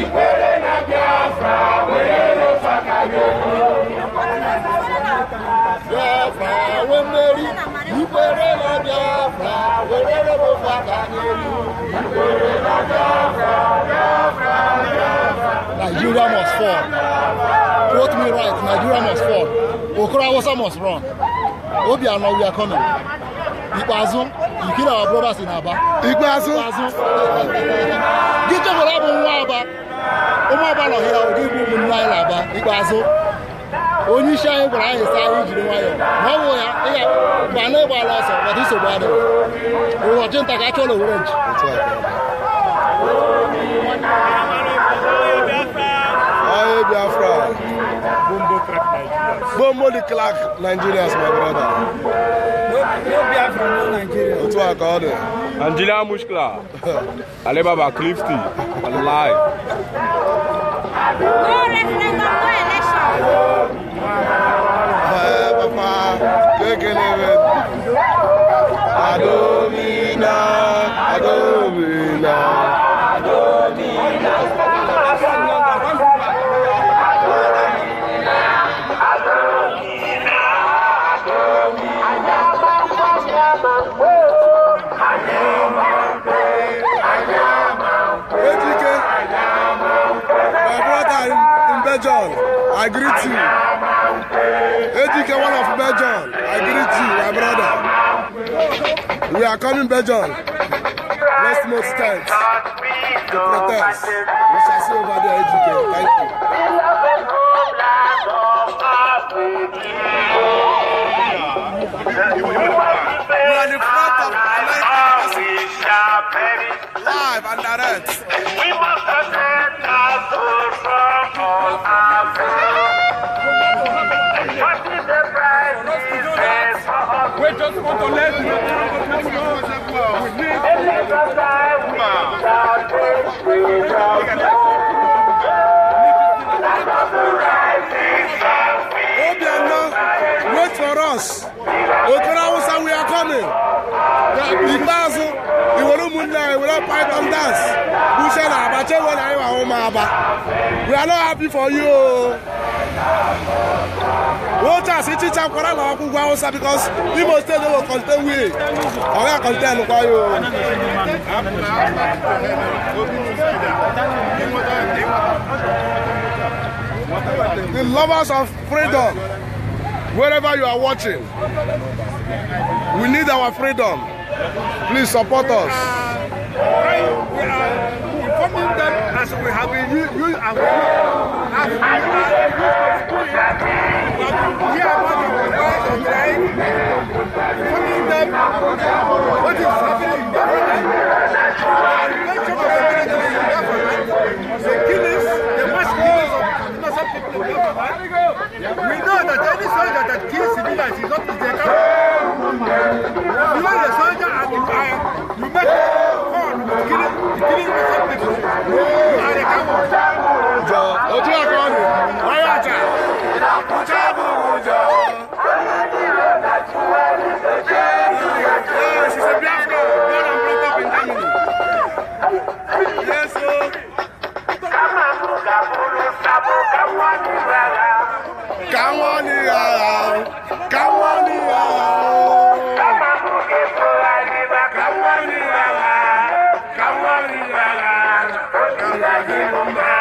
ikwere na biafra were lụsaka gị biafra we mmeri ikwere na biafra were lụsaka gị ikwere na biafra biafra biafra Nigeria must fall. Quote me right, Nigeria must fall. Okoro Hausa must run. Obiano, we are coming. Ikpeazụ you kill our brothers in Aba. Ikpeazu. Gị chọkwara bụ nwa Aba. Ụmụ Aba nọ hịa ụdị bụ ụmụnne anyị n'Aba. Ikpeazu. Onye isi anyị gwara anyị saa anyị jiri nwayọọ. ya ịga mgbe anyị gbala ọsọ maka nsogbu adịghị. Ụbọchị nta ka a chọrọ nji. Aye Biafra. Bombo crack Nigerians. Bombo the crack Nigerians, my brother. Otu aka ọ dị. Nigeria mushkila. Ale Clifty. Wallahi. No referendum, no election. Ee, papa, kekele be. Adomina, Adomina. Belgium, I greet you. ADK, one of Belgium, I greet you, my brother. We are coming Belgium. Let's move stands to protest. We shall see over there, ADK. Thank you. We are in front of Live and direct. just want to let you know we need Obiano, wait for us. Okra Hausa, we are coming. The, the uh, we don't python dance bushe na abache wey na iwa ọmọ aba we are not happy for you o. Waters it teach am kwara na ọkụ because Imo state no go contain we. Ọ ga contain kwa yo. The lovers of freedom, wherever you are watching, we need our freedom. Please support us. I, we are informing them as we have been used and we have been are used to do it. But we are not the ones of the right. Informing them what is happening in their life. The government, killings, the mass killings of innocent people We know that any soldier that kills civilians is not his account. You are the soldier and the fire. You make 你给我走回去！来，干么？走！都听我的，来呀！走！Come back here, my back.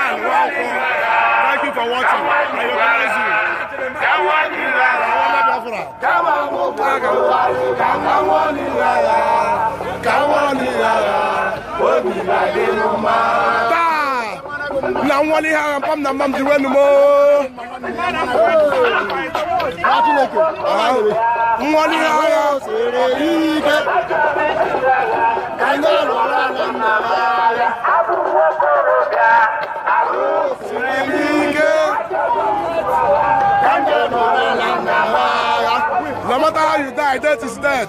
Man, welcome. Thank you for watching. I recognize you. Káwọn ní lára, káwọn ní lára, òbí láyé ló máa na nwale ha pam na mam diwe numo nwale ha ya sere ike anyị lụrụ ala nna ha No matter how you die, death is death.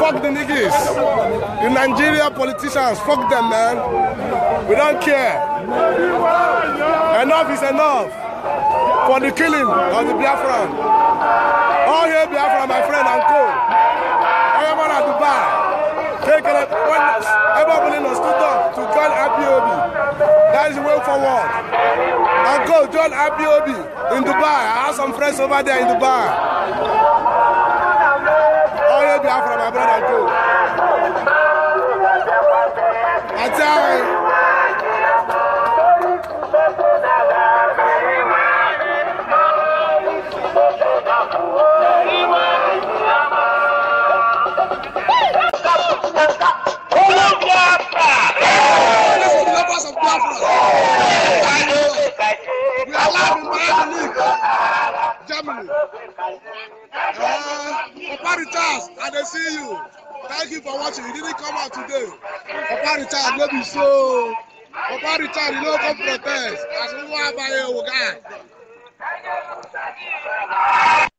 Fuck the niggas. The Nigeria politicians, fuck them, man. We don't care. Enough is enough for the killing of the Biafran. All here, Biafra, my friend and co. I am on Dubai. Take it. When everybody to up to join IPOB. That is the way forward. Uncle John Abiobi in Dubai. I have some friends over there in Dubai. All you have from my brother, Uncle. I tell you. house of Biafra. We are live in Miami, Germany. Uh, Papa Richards, I dey see you. Thank you for watching. You didn't come out today. Papa Richards, Let me show. Papa Richards, you no come protest. As we were by your guy.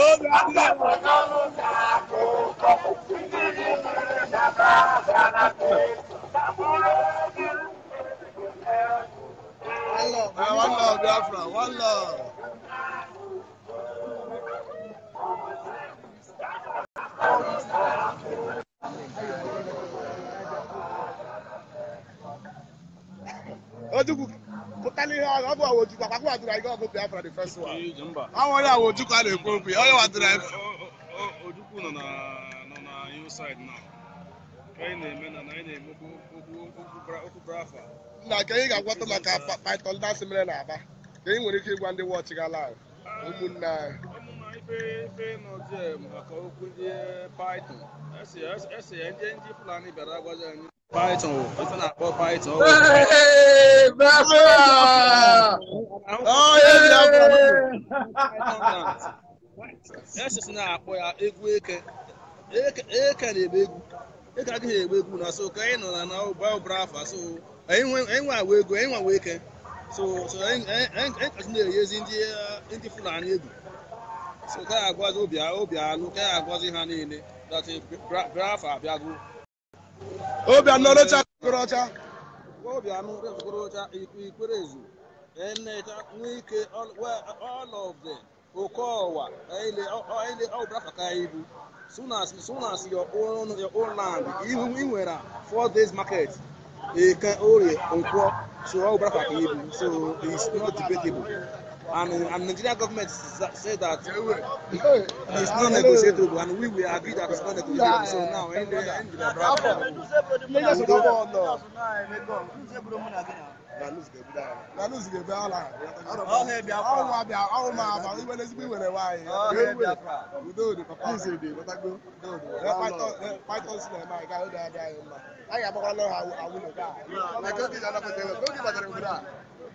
One love, Biafra, one love. Ó dúkù pụtala ihe ọ bụ ọgụ Biafra the first ọ nwere a na-ekwu okwu ya onye wadoro anyị Ojukwu nọ na hillside oh, oh, oh, na anyị na-eme na anyị na-eme okwu Biafra nna ka anyị ga-agwọta ah, maka python asị mere na Aba ka anyị nwere ike ịgwa ndị wọchị ga live ụmụnne anyị ife maka okwu ndị python esi ya ndị Fulani bịara anyị Python o, ó tún àpọ̀ Python o. Bravo! Ọ̀yẹ́ ni àpọ̀ Yes, na àpọ̀ ya egwu eke. Eke na-ebe Eke adịghị egbu na so ka anyị nọ na Bible so anyị nwe agwa egwu, anyị nwe agwa So so na-eyezi ndị Fulani egwu. So ka agwazi obi alụ, ka agwazi ha niile. That Biafra Obianọ Ọlọcha Okorocha ọcha Okorocha Ikwerezu ikwere Nwike all of them Okowa ile ọbụla faka ibu soon as soon as your own your own land even when four days market ike can orie nkwọ so ọbụla ibu so it's not debatable. and and Nigerian government say that it's not negotiable and we will agree that it's not negotiable so now end the end the problem. Lagos go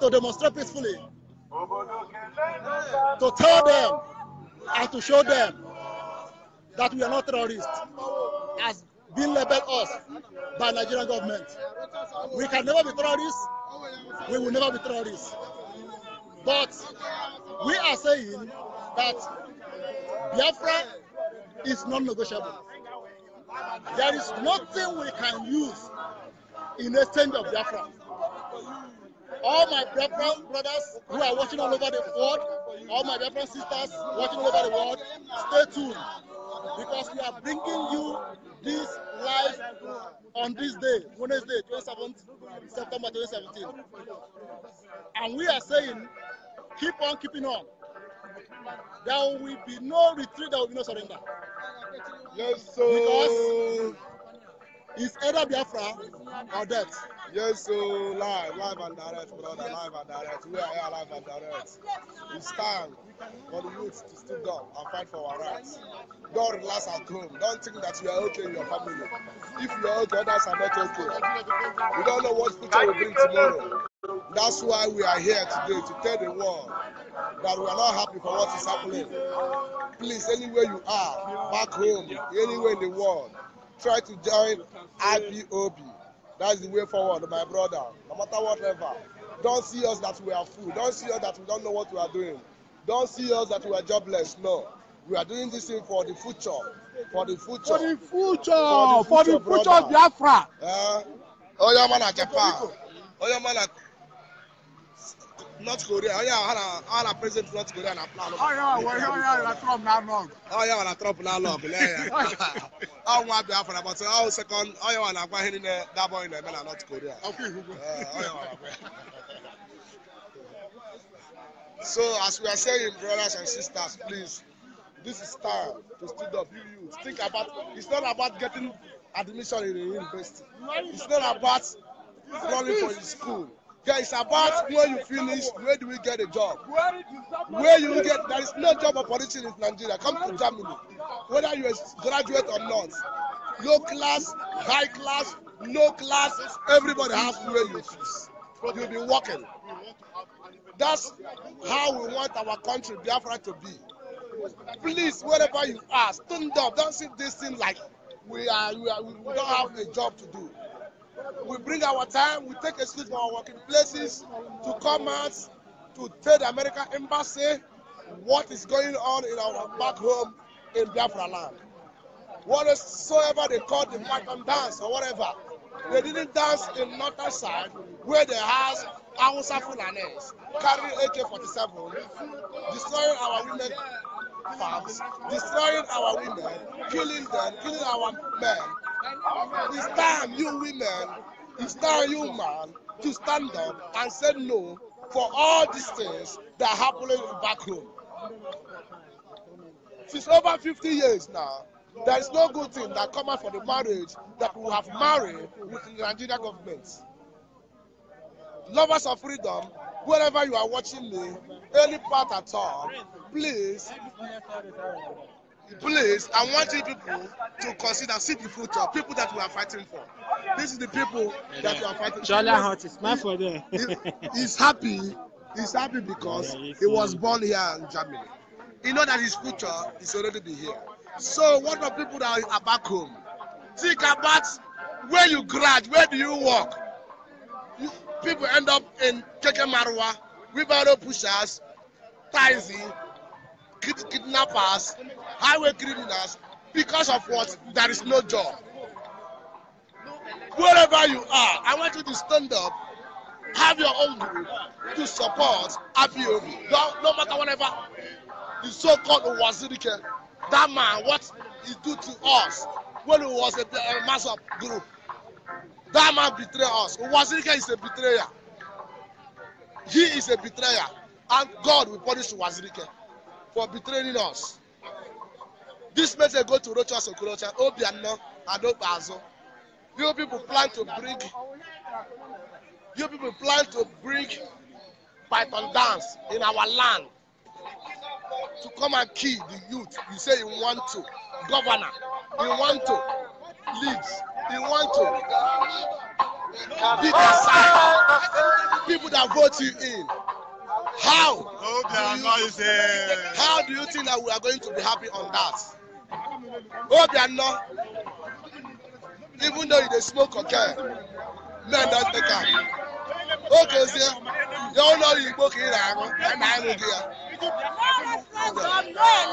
to demonstrate peacefully, to tell them and to show them that we are not terrorists, has been labeled us by Nigerian government. We can never be terrorists. We will never be terrorists. But we are saying that Biafra is non-negotiable. There is nothing we can use in exchange of Biafra all my brethren, brothers who are watching all over the world, all my brethren, sisters watching all over the world, stay tuned because we are bringing you this live on this day, Wednesday, 27th September 2017. And we are saying, keep on keeping on. There will be no retreat, there will be no surrender. Yes, sir. Because it's either Biafra or death. Yes, so live, live and direct, brother, live and direct. We are here live and direct. We stand for the youth to stood up and fight for our rights. Don't relax at home. Don't think that you are okay in your family. If you are okay, others are not okay. We don't know what future will bring tomorrow. That's why we are here today to tell the world that we are not happy for what is happening. Please, anywhere you are, back home, anywhere in the world, try to join IPOB. That's the way forward, my brother. No matter whatever. Don't see us that we are full. Don't see us that we don't know what we are doing. Don't see us that we are jobless. No. We are doing this thing for the future. For the future. For the future. For the future, for the future Biafra. Yeah. Oh, yeah, man, Japan. Oh, yeah, man, North Korea onye oh, a ara president North Korea na plan Trump na-alụ ọgụ na Trump na-alụ ọgụ lee ya ọnwa Biafra but ọ sekọnd onye wa na-agwa ihe niile dabọghị na-eme na North Korea uh, oh, so as we are saying brothers and sisters please this is time to stand up you think about it's not about getting admission in a university it's not about running for your school There is about where you finish, where do we get a job? Where you get there is no job opportunity in Nigeria. Come to Germany, whether you are graduate or not. Low class, high class, no class, everybody has where you finish. You'll be working. That's how we want our country, Biafra, to be. Please, wherever you are, stand up. Don't see this thing like we are, we, are, we don't have a job to do. We bring our time, we take excuse from our working places to come out to tell the American embassy what is going on in our back home in Biafra land. Whatsoever they call the Markham dance or whatever, they didn't dance in northern side where they has Hausa Fulanis carrying AK-47, destroying our women farms, destroying our women, killing them, killing our men, It's time you women, it's time you man to stand up and say no for all these things that are happening back home. Since over 50 years now, there is no good thing that come out for the marriage that we have married with the Nigerian government. Lovers of freedom, wherever you are watching me, any part at all, please Please, I want wanted people to consider see the future, people that we are fighting for. This is the people yeah, that we are fighting for. Charlie Hart is smart for eh? them. He's happy. He's happy because yeah, he was born here in Germany. He know that his future is already be here. So what about people that are back home, think about where you graduate. where do you work? You, people end up in Keke Marwa, wheelbarrow pushers, taxi, kid, kidnappers, highway criminals because of what there is no job. Wherever you are, I want you to stand up, have your own group to support Abiomi. No, no matter whatever the so-called Wazirike, that man, what he do to us when he was a, a mass of group. That man betrayed us. Wazirike is a betrayer. He is a betrayer. And God will punish Wazirike for betraying us. This message go to Rocha Rochas Okorocha, Obiano, and Obazo. You people plan to bring, you people plan to bring python dance in our land to come and kill the youth. You say you want to, governor, you want to, leads, you want to be the side people that vote you in. How? Do you, how do you think that we are going to be happy on that? Obiano, even though you dey smoke cocaine, men don take am. Okezie, ya ụlọrụ Igbo ka ị na-aṅụ, ya na-aṅụ gị ya.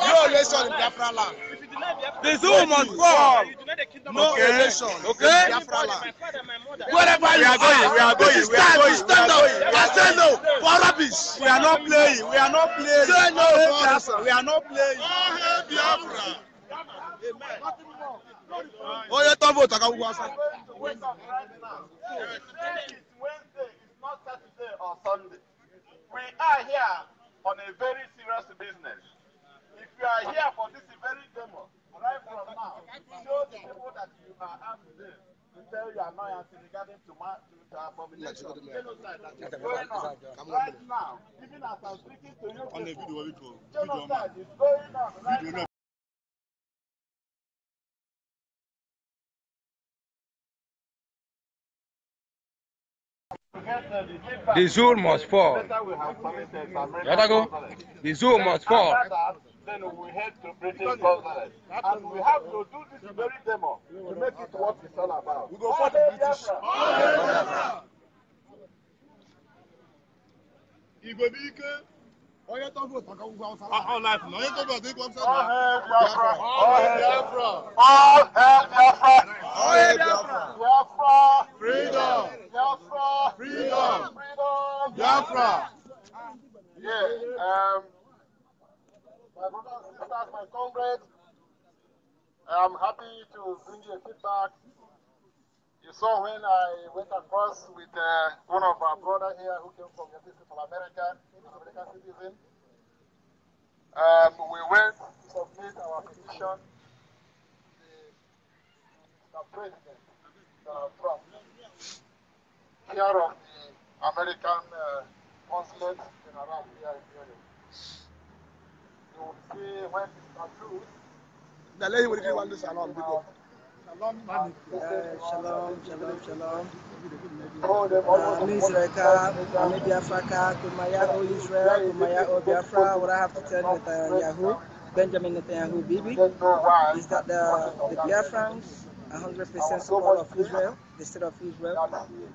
No election in Biafra land. The zoo must come. No relation. okay. in Biafra land. Wherever you are going, we are going, we are going, stand up and say no for rubbish. We are not playing, we are not playing. Say no for rubbish. We are not playing. Oh, hey, Biafra. Onye tọ vootu aka gwụgwọ asa. We are here on a very serious business. If you are here for this very demo, right now, show the people you are after this. To tell your annoyance regarding to my to genocide right now, even as I'm speaking to you, people, genocide is going on right now. The zoo must fall. Yadago, the zoo must fall. Then we head to British And we have to do this very demo to make it what it's all about. We go for the British. All the Biafra! Onye tó vote maka ugwu Hausa ah, land. All life. Onye tó vote maka ugwu Hausa land. Biafra. All Biafra. All Biafra. All Biafra. Biafra. Freedom. Biafra. Freedom. Freedom. Biafra. Yeah. Um, my brothers, my comrades, I'm happy to bring you a feedback You saw when I went across with uh, one of our brother here who came from Central America, American citizen. Um, we went to submit our petition to the uh, President Donald Trump, here of the American uh, consulate general here in Europe. You will see when it's approved. Now, let me give you one this along, people. shalom, shalom, shalom. Ami Israelka, Ami Biafraka, Kumaya O Israel, Kumaya O Biafra. What I have to tell Netanyahu, Benjamin Netanyahu Bibi, is that the, the Biafrans 100% support of Israel, the state of Israel,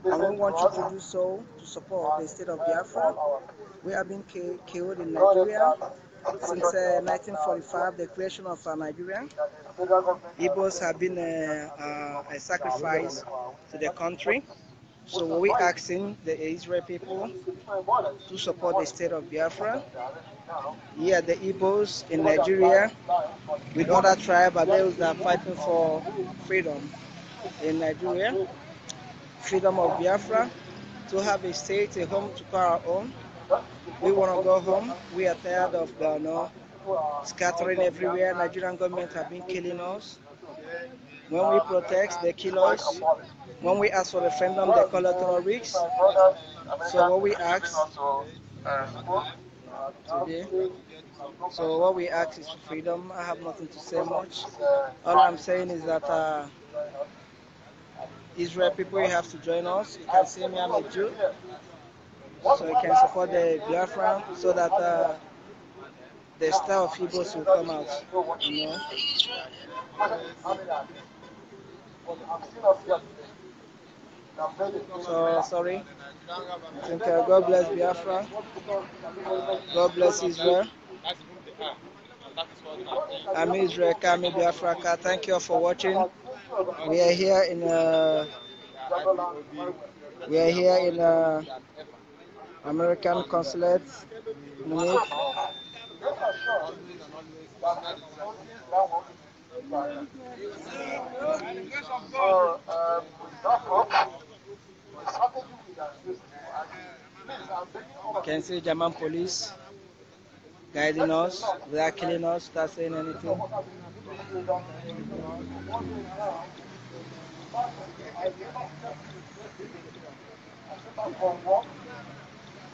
and we want you to do so to support the state of Biafra. We have been killed in Nigeria since uh, 1945, the creation of uh, Nigeria. Igbos have been uh, uh a sacrifice to the country. So we are asking the Israel people to support the state of Biafra. Here the Igbos in Nigeria with other tribes are those that are fighting for freedom in Nigeria, freedom of Biafra, to have a state, a home to call our own. We want to go home. We are tired of the no, scattering everywhere. Nigerian government have been killing us. When we protest, they kill us. When we ask for referendum, they call us terrorists. So what we ask today, so what we ask is for freedom. I have nothing to say much. All I'm saying is that uh, Israel people, you have to join us. You can see me, I'm a Jew so we can support the Biafra so that uh, the style of Igbos will come out. You know? So sorry. I think uh, God bless Biafra. God bless Israel. I'm Israel Kami Biafraka. Thank you all for watching. We are here in uh, we are here in uh, American consulate, Can see German police guiding us without killing us, without saying anything.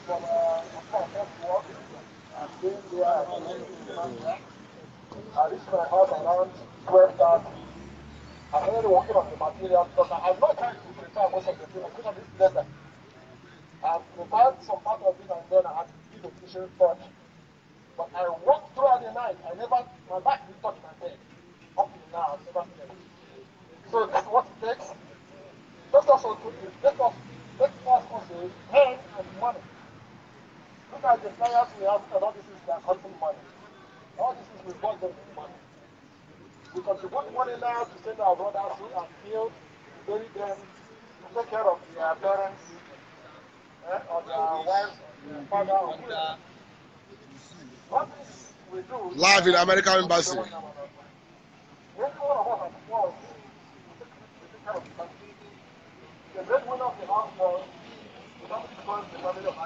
I reached my house around 12.30. I'm already working on the material because I have no time to prepare most of the things. I put I prepared some part of it and then I had to give the But I walked throughout the night. I never, my back didn't touch my bed. Up till now, never seen So that's what takes. Let us also, let us, let us also, hand and money. Look at the players we have and all this is they are money. All this is we bought them with money. We contribute money now to send our brothers who are killed, bury them, to take care of their parents, eh, or their wives, their father, or whoever. What we do... Live in American Embassy. The great one of the house was the family of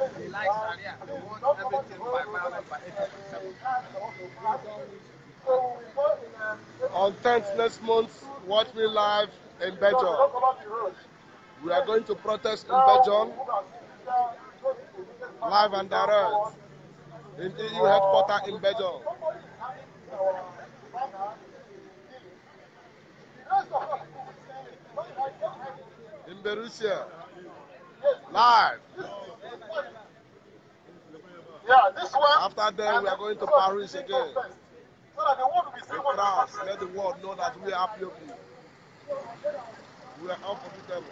They like Sharia. They want everything by violence, by On 10th next month, watch me live in Belgium. We are going to protest in Belgium, live and direct, in EU e headquarters in Belgium. In Berusia, live. Yeah, this one. After that, we are going to Paris again. so that the world will be seeing what France, let the world know that we are happy of you. We are unforgettable.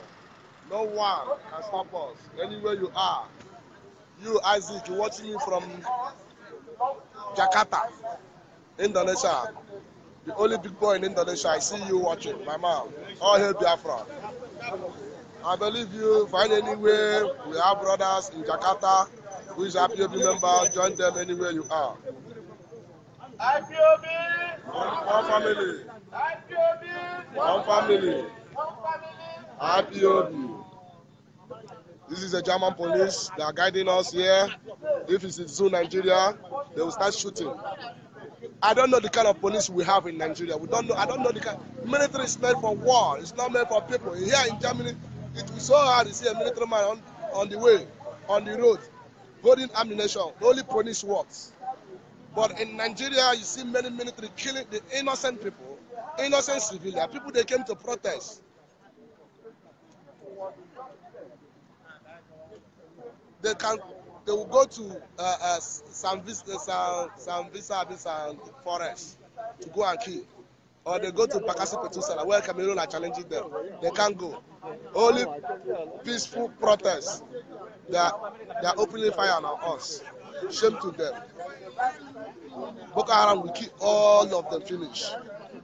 No one can stop us. Anywhere you are, you Isaac, you watching me from Jakarta, Indonesia. The only big boy in Indonesia. I see you watching, my mom. All hail Biafra. I believe you. Find anywhere. We have brothers in Jakarta, who is a IPOB member, join them anywhere you are. IPOB. One family. IPOB. One family. One family. IPOB. This is the German police. They are guiding us here. If it's in Zoo, Nigeria, they will start shooting. I don't know the kind of police we have in Nigeria. We don't know. I don't know the kind. Military is meant for war. It's not meant for people. Here in Germany, it was so hard to see a military man on, on the way, on the road holding ammunition, only punish works. But in Nigeria, you see many military killing the innocent people, innocent civilians, people they came to protest. They can, they will go to uh, uh, some, uh, some, some visa, some forest to go and kill or they go to Bakasi Petusala where Cameroon are challenging them. They can't go. Only peaceful protests. They are, they opening fire on us. Shame to them. Boko Haram will keep all of them finish.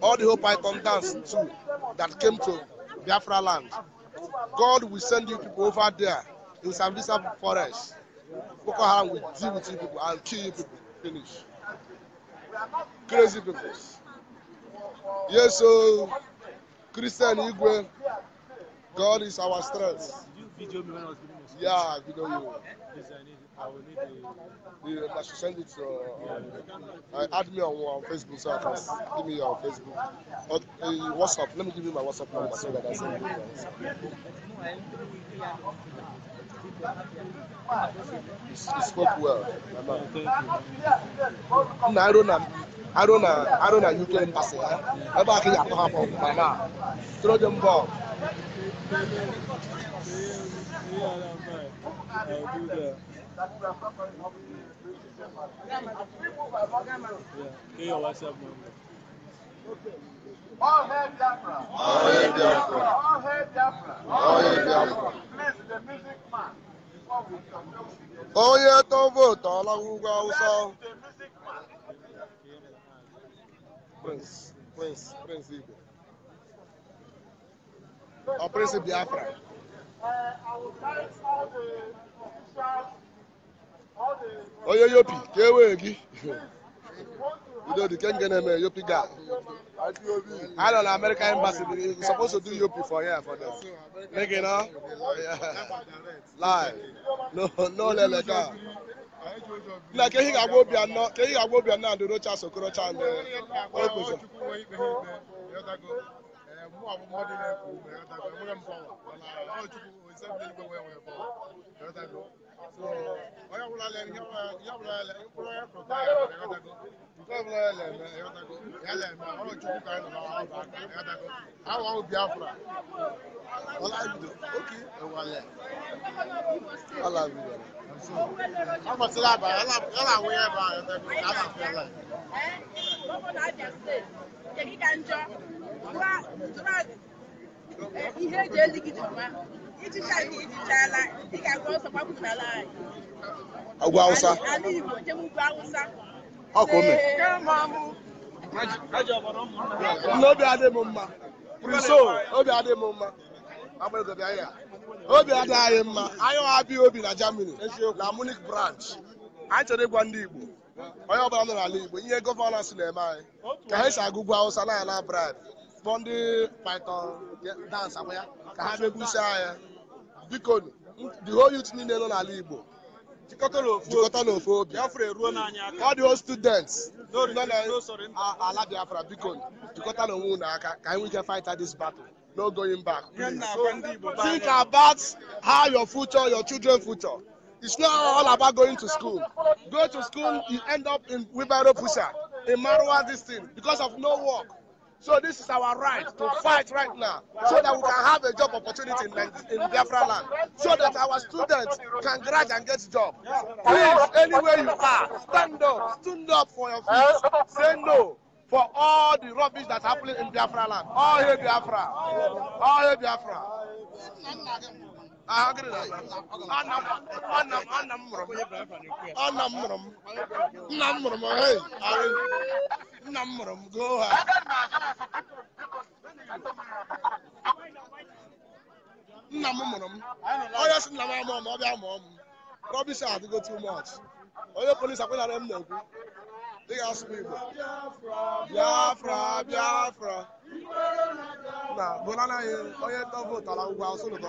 All the whole Python dance too that came to Biafra land. God will send you people over there in Sambisa forest. Boko Haram will deal with you people and kill you people. Finish. Crazy people yeso christian igwe god is our strength. yeah video you. Yeah, uh, I should send it to uh, uh, add me on, on uh, Facebook so I can give me your Facebook. uh, WhatsApp. Let me give you my WhatsApp number so that I send you. He spoke well. Nna arụ na arụ na arụ na UK embassy ha eh? ebe a ka ị ga-akpọ ha kpọ ma na throw them ball. All hail Biafra! All hail Biafra! All hail Biafra! All hail Biafra! onye tó vootu n'ugwu awụsa prince igbo or prince biafra onye yopi ka e wee gị Udodike Ngeneme, Yopi na-eme don't know, A embassy. na Amerịka to do Yopi for here for them. Make it up. Yeah. Live. No, no, Lele ka ehi ga-agba obi anọ ka ehi ga-agba obi anọ ndị rocha sokorocha ndị Àwọn ọmọ Biafra, Ọlájúdò, ókè ẹ̀wàlẹ̀, Ọlájúdò. Ọmọ tí lábàá, yálà àwọn ẹ̀bà ẹ̀dẹ̀gbẹ̀ lábàá fẹ́lẹ̀. Ẹ́ bọ́bọ̀ náà jẹ́ sílẹ̀, jẹ́ kíkà ń jọ, ihe eji eligide ọma ichicha gị ichichala ị ga-agwa ọsọ gbapụ n'ala anyị ọgwụ awụsa ala igbo jem ugwu awụsa ọkụme n'obi adị m mma priso obi adị m mma obi adịghị anyị mma anyị abịa obi na germany na munich branch anyị chọrọ ịgwa ndị igbo onye ọbụla nọ n'ala igbo ihe gọvanọnsị na-eme anyị ka ha si agụgwụ awụsa na ala braibe kpọ ndị python dance akwa ya ka ha bịa gwusaa ya biko the whole youth niile nọ n'ala igbo jikọta n'ofe obi ọ dị o students nọ n'ala biafra biko jikọta n'onwe unu aka ka anyị nwee fight this battle no going back think about how your future your children future it's not all about going to school go to school you end up in wheelbarrow Pusa, in marwa this thing because of no work So this is our right to fight right now so that we can have a job opportunity in, in Biafra land, so that our students can graduate and get job. Please, anywhere you are, stand up, stand up for your feet. Say no for all the rubbish that's happening in Biafra land. All here, Biafra. All hail Biafra. Anam mụrụ m nna m mụrụ m nna m mụrụ m goo ha nna m mụrụ m onye si nna m amụọ m ọ bịa mụọ m rọbis adịgo too much onye polisi akwenara m na-ekwu dị ga-asụ m igbo biafra biafra na bụlanaghị onye ndọvot ala ugwu asụ n'ụtọ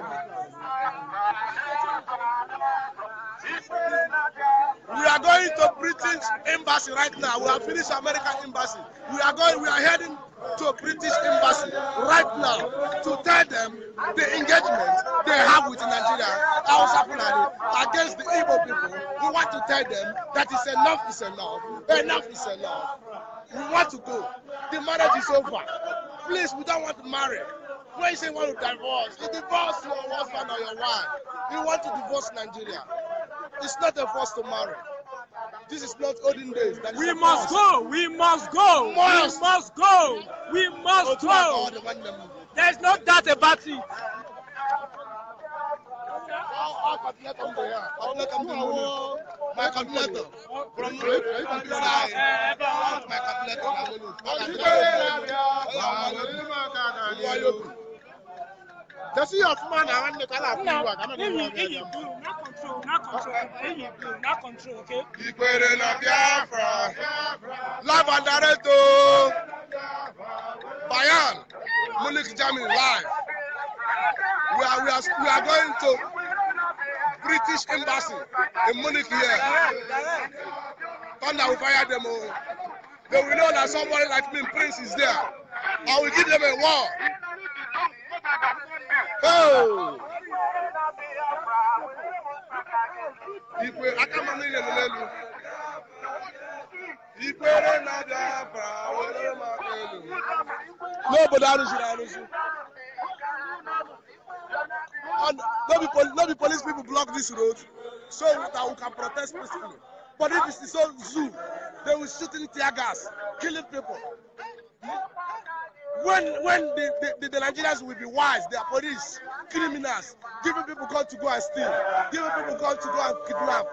We are going to British embassy right now. We have finished American embassy. We are going. We are heading to British embassy right now to tell them the engagement they have with Nigeria, Hausa Fulani, against the Igbo people. We want to tell them that is enough is enough. Enough is enough. We want to go. The marriage is over. Please, we don't want to marry. When you say you want to divorce, you divorce your husband or your wife. You want to divorce Nigeria. It's not a first to This is not olden days. We must, go, we must go. Must. We must go. We must oh, go. go. There is no doubt about it. My calculator. From my computer control, not control. Eyi not control, okay? Ìpèrè na Biafra. Lábàdàrẹ́ tó. Bayan, Munich, Germany, live. We are, we are, we are going to British embassy in Munich here. Thunder will fire them all. Oh. They will know that somebody like me, Prince, is there. I will give them a war. Oh! ikwe aka ma mmiri elele elu ikwere na-abịa were maka elu n'obodo arụziri arụzi no be police people block this road so that we can protest peacefully but if it's so zoo they will shooting tear gas killing people. Hmm? when when the, the, the, Nigerians will be wise, their police, criminals, giving people call to go and steal, giving people call to go and kidnap.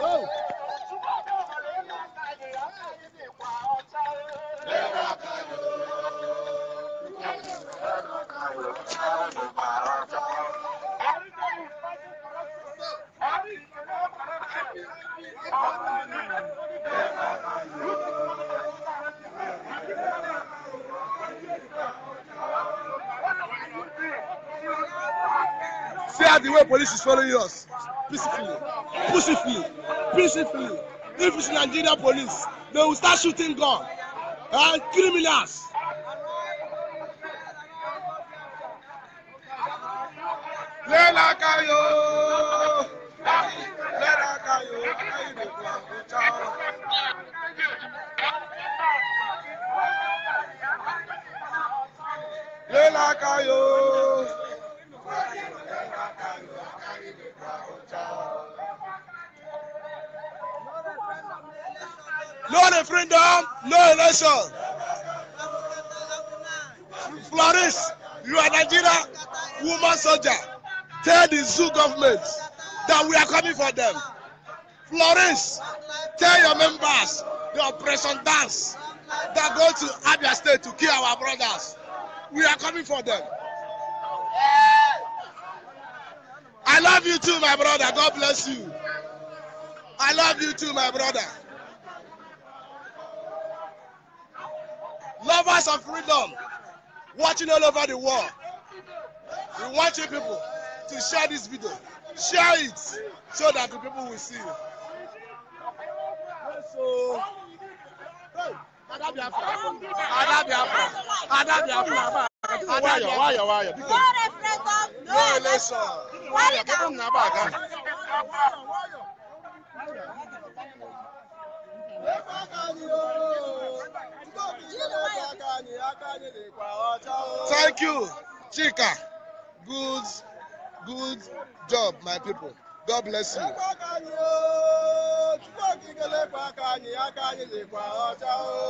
No. that the way police is following us peacefully peacefully peacefully if it's nigeria police they will start shooting gun and uh, criminals we are coming for them. I love you too, my brother. God bless you. I love you too, my brother. Lovers of freedom, watching all over the world. We want you people to share this video. Share it so that the people will see. So, Thank you, Chika. Good, good job, my people. God bless you.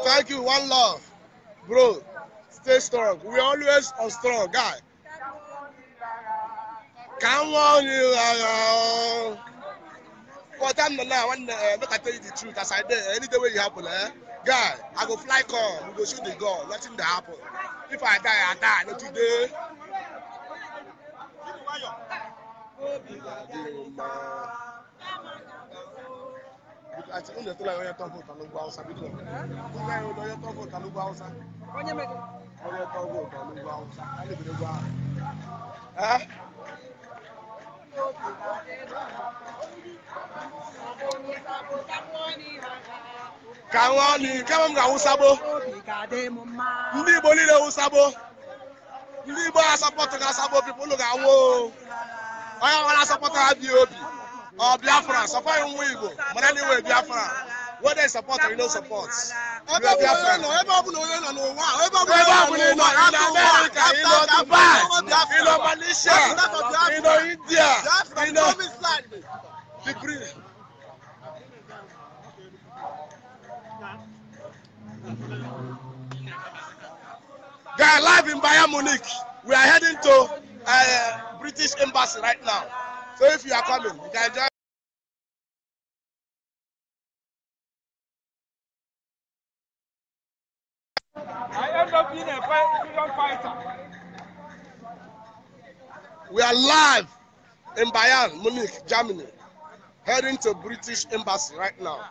Thank you. One love. Bro, stay strong. We always are strong, guy. Come on, you are. For time now. I want uh, make I tell you the truth, as I did, any day when happen, eh? Guy, I go fly come, we go shoot the gun, nothing dey happen. If I die, I die, not today obi wàjà nípa. àti oúnjẹ tó láyọ̀ ọyẹ́ tó ń fún ìtàlógún haúsá bí kò tó láyọ̀ ọyẹ́ tó ń fún ìtàlógún haúsá. ọyẹ́ ni kẹ́wọ́n ga wúsábó ndị Igbo niile wúsábó ndị Igbo asapọtụ ga asabó pipụlụ ga anwụ o onye ọbụla sọpọta ha obi ọ biafra sọpọghị nwa igbo mara na biafra whether you support or you no support you are biafra. ebe ọ bụla onye nọ n'ụwa ebe ọ bụla onye nọ n'ụwa ebe ọ bụla onye nọ n'ụwa ebe ọ bụla onye nọ malaysia you know india you know degree. guy live in bayern munich we are heading to. Uh, British Embassy right now. So if you are coming, you can join. I end up being a freedom fighter. We are live in Bayern, Munich, Germany, heading to British Embassy right now.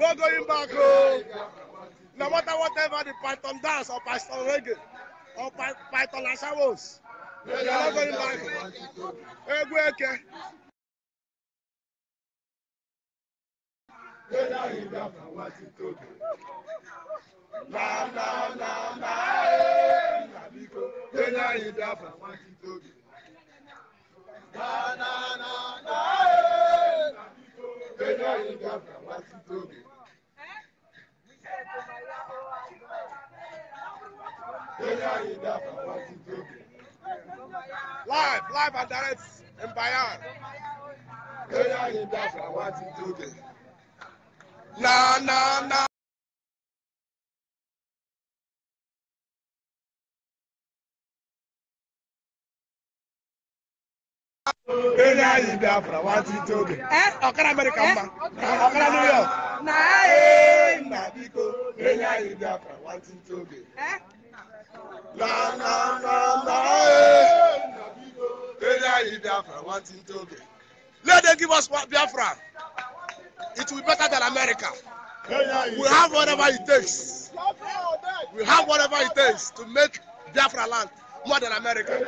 No going back. Oh. No matter whatever the Python dance or Python reggae or Py Python Asawos. They are not going back. Egweke. Na na na na eh na biko. They are in that for one to Na na na na eh na biko. They are in that for one to Live, live and direct in Bayan. in Biafra, what is doing? Na, na, na. Kenya yi Biafra, what is doing? Eh, Okara America, eh, Okara New York. Na, eh, eh na, biko. Kenya yi Biafra, what is doing? Eh. Eh. Let them give us what Biafra. It will be better than America. We have whatever it takes. We have whatever it takes to make Biafra land more than America.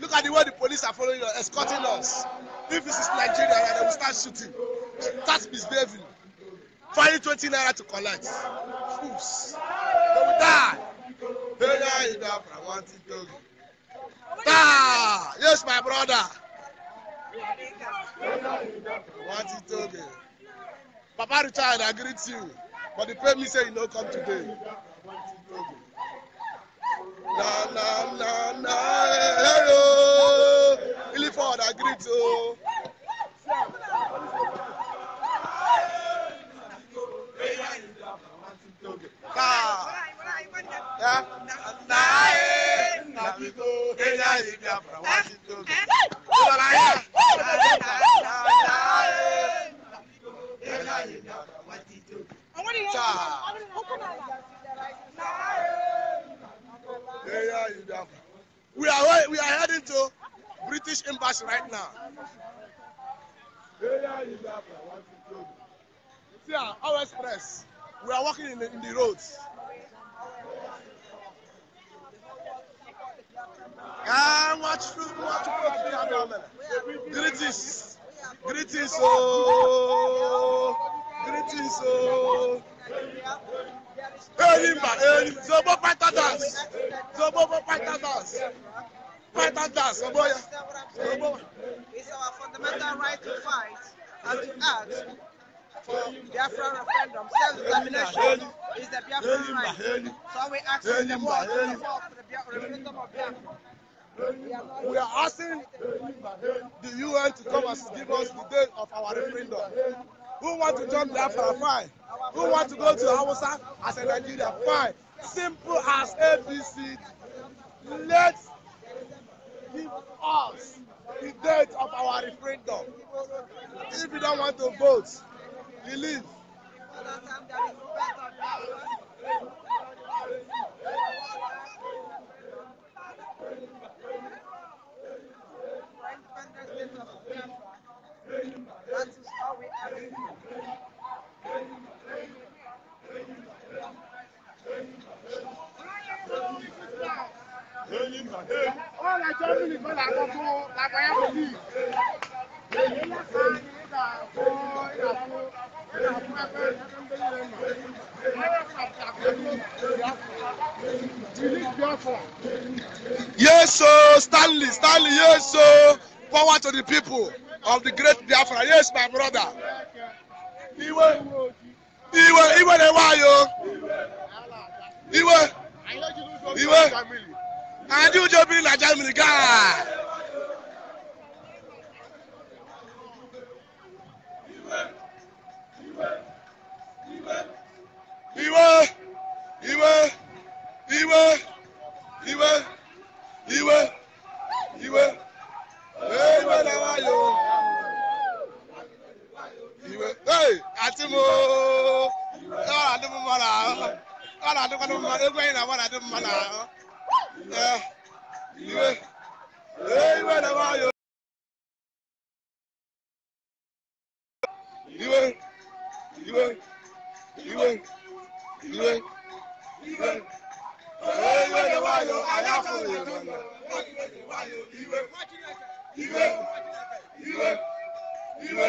Look at the way the police are following us, escorting us. If this is Nigeria, they will start shooting, start misbehaving, finding 20 naira to collect. Fools. They will die. Very enough, I want it to Ah, yes, my brother. What is talking? Papa Richard, I greet you. But the pay me say you no come today. Na na na na hello. Really forward, I greet you. Ah. We are we are heading to British embassy right now. See our express. We are walking in the, in the roads. Greetings. Greetings, oh. Greetings, oh. Erimba, erimba. Zobo fighter dance. Zobo fighter dance. Fighter dance, oh boy. Zobo. It's our fundamental right to fight and to act for Biafran referendum. Self-determination is the Biafran right. So we ask them what is the referendum of Biafra. We are asking the UN to come and give us the date of our referendum. Who want to join Biafra? Fine. Who want to go to Hausa as a Nigeria? Fine. Simple as ABC. Let's give us the date of our referendum. If you don't want to vote, you leave. Yes, ẹ̀jọ́ mi Stanley Yes, Yeso forward to the people of the great Biafra yes my brother iwe iwe iwe na-ewe anyị o iwe iwe anyị ụjọ biri na Germany gaa iwe iwe iwe iwe iwe iwe iwe na-ewe àti mo ọ̀rọ̀ mo mọ́ra ọ̀rọ̀ àdúgbò tó mọ́ra ẹgbẹ́ yìí náà wọ́n mo mọ́ra ìwé ìwé náà wọ́n yọ. ìwé ìwé ìwé ìwé ìwé ìwé náà wọ́n yọ àyàfọ̀ ìwé náà ìwé ìwé ìwé ìwé.